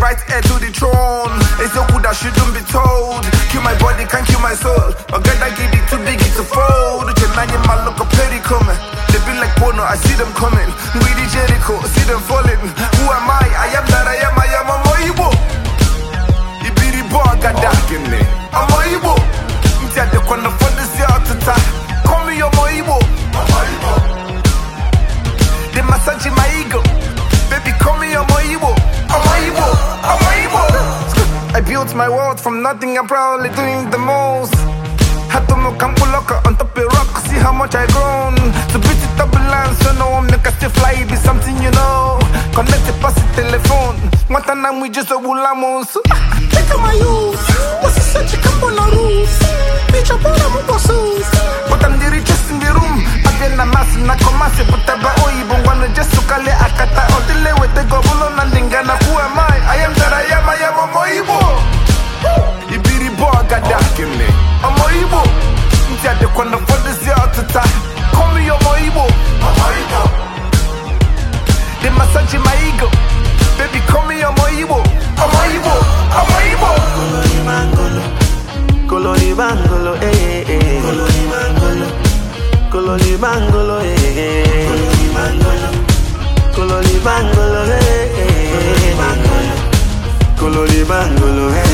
right heir to the throne. It's a that shouldn't be told. Kill my body, can't kill my soul. But God, I give it too big, it's a fold. Chennai, my look, a petty coming. be like Bono, I see them coming. We the Jericho, see them falling. Who am I? I am that I am, I am a Moibo. Ibiri Boagada. I'm Moibo. Ntiyade kwana fondisi atata. built my world from nothing, I'm proudly doing the most. Had to move locker on top of rock, see how much I grown. to beat it up line, so no one make us to fly, be something you know. Connect it past the telephone. What we just a Take my youth, what's such a Bitch, I'm on But I'm the richest in the room. I'm quando fondesi ọtụta komi omo igbo dị masaji ma bebi komi ọmọ igbo ọmọ igbo ọmọ igbo koloribangolo ee eh, ee eh, eh. koloribangolo ee koloribangolo ee mangolo ee